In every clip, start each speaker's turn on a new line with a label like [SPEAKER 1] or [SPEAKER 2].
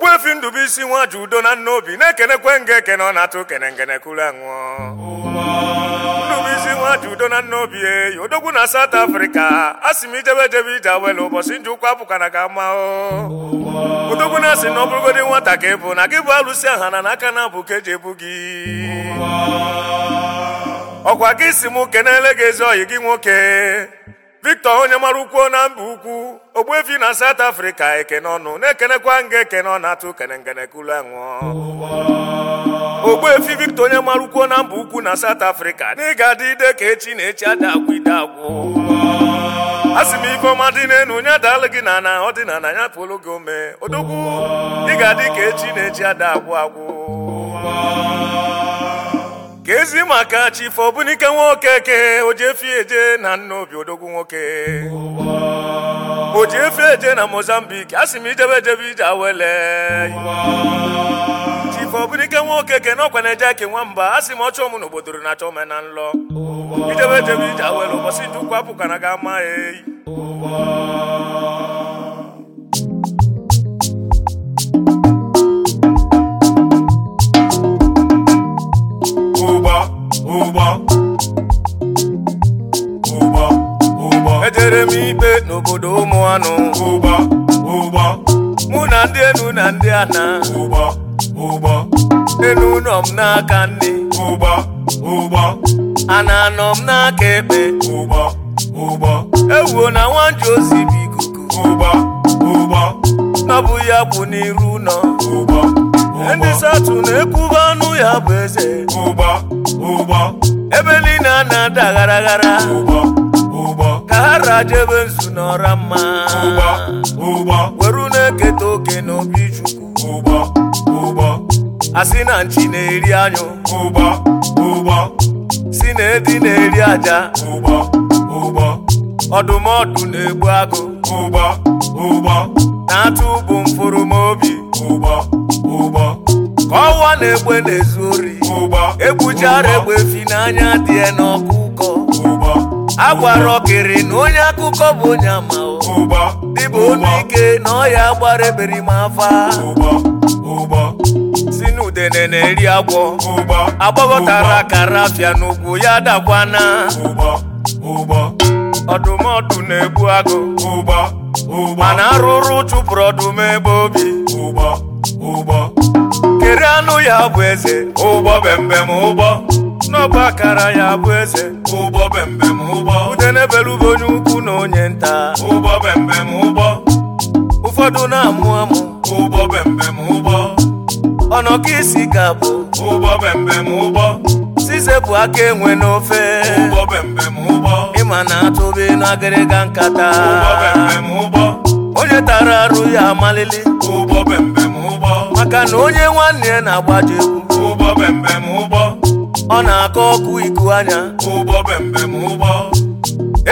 [SPEAKER 1] Ogbuefi Ndụbụisi nwa ji udo na nna obi na-ekenekwe nga ekene ọ na-atụ kene ngenekuru anwụọ Ndụbụisi nwa ji udo na nna obi eyi odogwu na South afrịka a sị m ijebe jebe ije awele ụbọchị nji ụkwụ ga ka ama odogwu na-asị na ọ bụrụgodị nwata ka ị bụ na gị bụ alụsị aha na n'aka na abụ ka eji ebu gị ọkwa gị si m kenele gị ezi ọyị gị nwoke victor onye mara ukwu na mba ukwu ogbuefi na south africa ekene ọnụ na-ekenekwa nga ekene ọ na-atụ kene ngenekulu anwụọ ogbuefi victor onye mara ukwu na mba ukwu na south africa na ịga adị ide ka echi na echi ada agwụ ide agwụ a sị m ifeọma dị n'enu nye adaalụ gị na na ọdịnala ya pụrụ gị ome odogwu ị ga-adị ka echi na echi ada agwụ agwụ ezi maka chif ọbụnike nwoke ke ojefieje na obi odogwu nwoke ojefieje na mozambik a sị m ijebe ejebe ije awele chif ọbụnike nwoke ke n'ọkwa na-eje eke nwamba a sị m ọchọ m na obodoro na achọ na nlọ ijebe ejebe ije awele ụbọchị ndụ kwapụkwana ga ama eyi ụgbọ ụgbọ mụ na ndị enu na ndị ana ụgbọ ụgbọ nọ m n'aka nne ụgbọ ụgbọ ana anọ m n'aka ekpe ụgbọ ụgbọ ewuo na nwanji osi bụ ikuku ụgbọ ụgbọ ya bụ n'iru ụlọ ụgbọ ndị satụ na anụ ya bụ eze ụgbọ ụgbọ ebe niile a na-ada gharaghara ụgbọ ahara jebe nzu n'ọra mma weru na-eketa oke n'obi chukwu asị na nchi na-eri anyụ si na edi na-eri aja ọdụmọdụ na-egbu agụ na-atụ bụ mfụrụmobi ka ọwa na-egbe na-ezu ori egbuchara egbe fi n'anya dị n'ọkụ agwara ọkịrị okiri na onye akụkọ bụ onye ama dịbụ ike na ọya gbara eberi m afa si n'udene na-eri agwọ agbagọtara akara afịa n'ugwu ya dakwa ọdụm ọdụmọdụ na-egbu agụ mana arụrụ chụpụrụ ọdụm ebe obi kere anụ ya bụ eze ụgbọ bembem ụgbọ n'ọbụ akara ya bụ eze ụbọ. bembem ụgbọ udenebelube onye ukwu na onye nta ụgbọ bembem ụbọ. ụfọdụ na-amụ amụ ụbọ bembem ụgbọ ọnọka isi ga-abụ ụgbọ bembem ụbọ. size bụ aka enwe n'ofe ụgbọ bembem ụbọ. ịma na atụbe n'agịrịga nkata ụgbọ bembem ụgbọ onye tara arụ ya amalili ụgbọ bembem ụbọ. maka na onye nwanne na-agbaji egwu ụgbọ bembem ụgbọ ọ na-akọ ọkụ iku anya Ụbọ ụgbọ bembem ụgbọ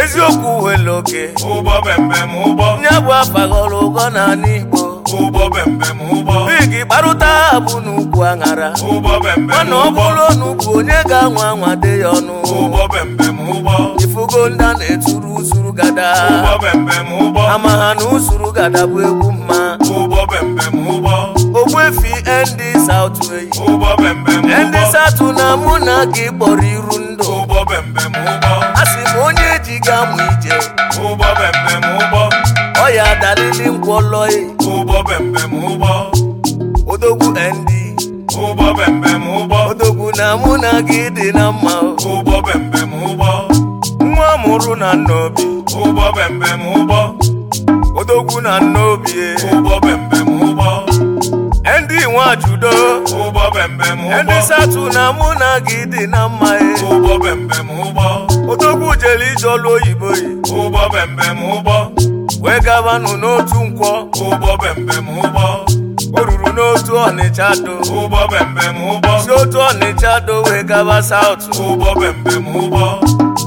[SPEAKER 1] eziokwu were oke ụgbọ bembem ụgbọ ya bụ afa ghọrọ ụgọ n'ala Igbo ụgbọ bembem ụgbọ bigi kparụta abụ n'ugwu aṅara ụgbọ bembem ụgbọ mana ọ bụrụ n'ugwu onye ga-anwa anwa dị ya ọnụ ụgbọ bembem ụgbọ ifugo ndị a na-eturu usuru gada ụgbọ bembem ụgbọ ama ha na usuru gada bụ egwu mma Ụbọ ụgbọ bembem ụgbọ nwefi ndị saụtụ eyi ndị saụtụ na mụ na gị kpọrọ iru ndụ a sị m onye ji ga mụ ije ọ ya dalili nkwọlọyi odogwu ndị odogwu na mụ na gị dị na mma nwa mụrụ na nna obi Odogu na nnọọ obi e. ndị bẹm ndị satu na mụ na gị dị na mma e. odogwu jere ije ọlụ oyibo yi e. wee gabanụ n'otu nkwọ o ruru n'otu ọnịcha do si otu ọnịcha do wee gaba saut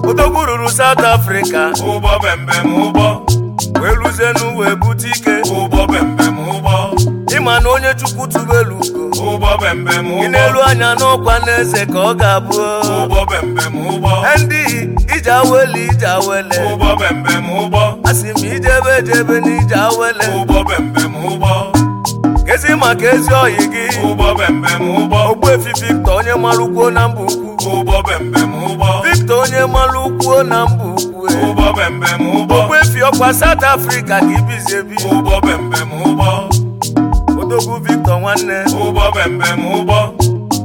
[SPEAKER 1] odogwu ruru saut afrịka wee ruzienu wee bute ike ịma na onye chukwu tubelu ugo ị na-elu anya na n'eze ka ọ ga-abụ ndị ije awele ije awele asị m ijebe ejebe na ije awele kezi maka ezi ọyị gị ogbuefi Victor onye mara ukwuo na mba ukwu Victor onye mara ukwuo na mba ukwu ogbuefi ọkwa South Africa ka ibizi odogwu Victor nwanne ụgbọ bembem ụgbọ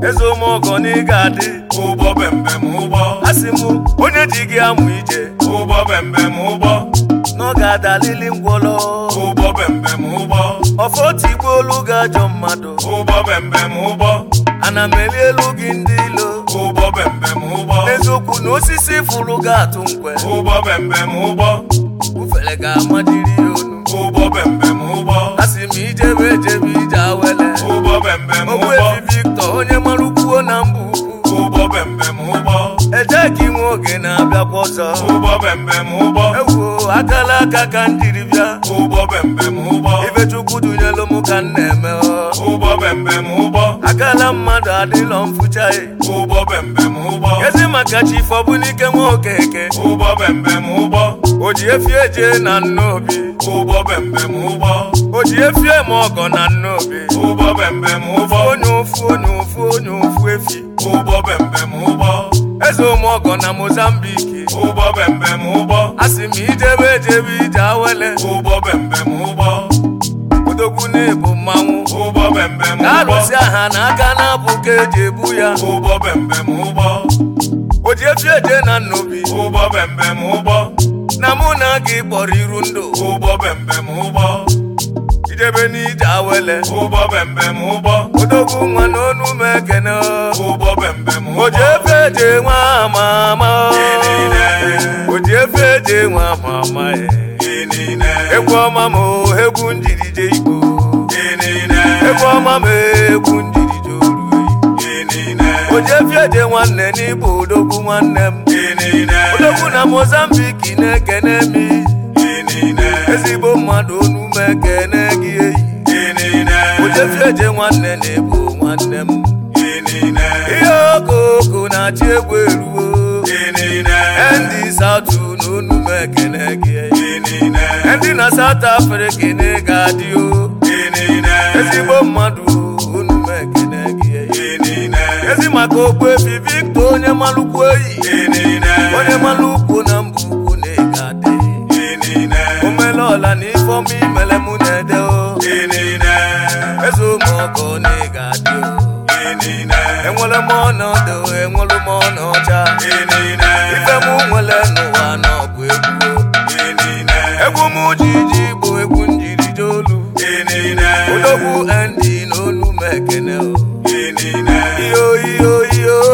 [SPEAKER 1] eze ụmụọgọ na ị ga-adị ụgbọ bembem ụgbọ asị m onye ji gị amụ ije ụgbọ bembem ụgbọ na ọ ga-adalili ngwọlọ ụgbọ bembem ụgbọ ọfọ tigbu olu ga-ajọ mmadụ ụgbọ bembem ụgbọ ana m eli elu gị ndị ilo ụgbọ bembem ụgbọ n'eziokwu na osisi fụrụ ga-atụ nkwe ụgbọ bembem ụgbọ ufere ga-amadiri ya onu ụgbọ bembem ụgbọ asị m ijebe ejebe ogbuebi Victor onye mara ukwuo na mba ukwu eje ka inwe oge na-abịakwa abịa ọzọ ewuo e akala aka ka ndiri bịa ifechukwu dunyelu m ka m na-eme akala mmadụ adịlọ mfụchaghị e. ezi maka chi fọbụlike nwa okeke o ji efie jee na nnobi ụgbọ bembe m ụgbọ o ji efie ma ọgọ na nnobi ụgbọ bembe m ụgbọ onye ụfụ onye ụfụ onye ụfụ efi ụgbọ bembe m ụgbọ eze ụmụ ọgọ na mozambiki ụgbọ bembe m ụgbọ asị m ijebe ejebe ije awele ụgbọ bembe m ụgbọ odogwu na-ebu mmanwụ ụgbọ bembe m ụgbọ na-arụsi aha na aka na-abụ ka eji ebu ya ụgbọ bembe m ụgbọ o ji efi eje na nnobi ụgbọ bembe m ụgbọ na mụ na gị kpọrọ iru ndụ ụgbọ bembem ụgbọ idebe n'ije awele ụgbọ bembem ụgbọ odogwu nwa n'ọnụ m ekene ụgbọ bembem O ji efe eje nwa ama ama O ji efe eje nwa ama ama egwu eh. ọma m oh, egwu njirije igbo egwu ọma m eh, egwu ojefiede nwanne n'ịbụ odogwu nwanne m odogwu na mozambiki na-ekene m ezigbo mmadụ onume ekene gị eyi ojefiede nwanne na-ebu nwanne m ihe okooko na-achị egwu eruo ndị satụ na onume ekene gị ndị na South Africa na-ega adị ezigbo mmadụ maka okwu efi onye malụkwu oyi onye malụkwu na mba ukwu na-ege omele ọla na ifeọma imele mụ na-ede o eze ụmụọkọ na-ege adị enwere m ọnọdụ enwere m ọnọcha ife m nwere n'ụwa na ọgụ egwu egwu m ji ji bụ egwu njiri jolu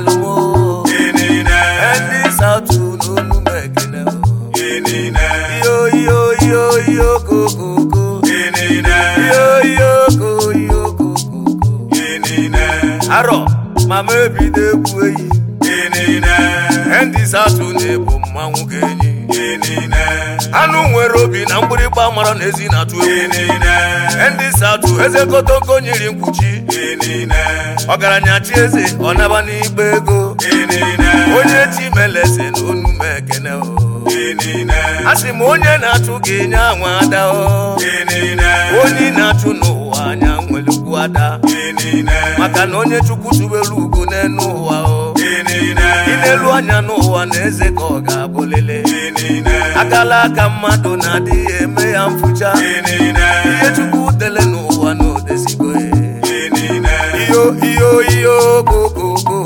[SPEAKER 1] eluwo ndị saụtụ n'olu m ekele iyo arọ mama ebido egwu eyi ndị saụtụ na-ebu mmanwụ ga-enyi anụ nwere obi na mgbịrịgba mara na ezi na-atụ ndị si eze kotonko nyiri mkpuchi ọgaranya chi eze ọ naba n'igbe ego onye chi meleze na onumekene a sị m onye na-atụ gị nye anwụ ada onye na-atụ n'ụwa anya nwere ukwu ada maka na onye chukwu tubere ugo n'elu ụwa ị na-elu anya n'ụwa na eze ka ọ ga-abụlele akala aka mmadụ na-adịghị eme ya mfụcha ihe chukwu dele n'ụwa na odezigo e. iyo iyo iyo gogogo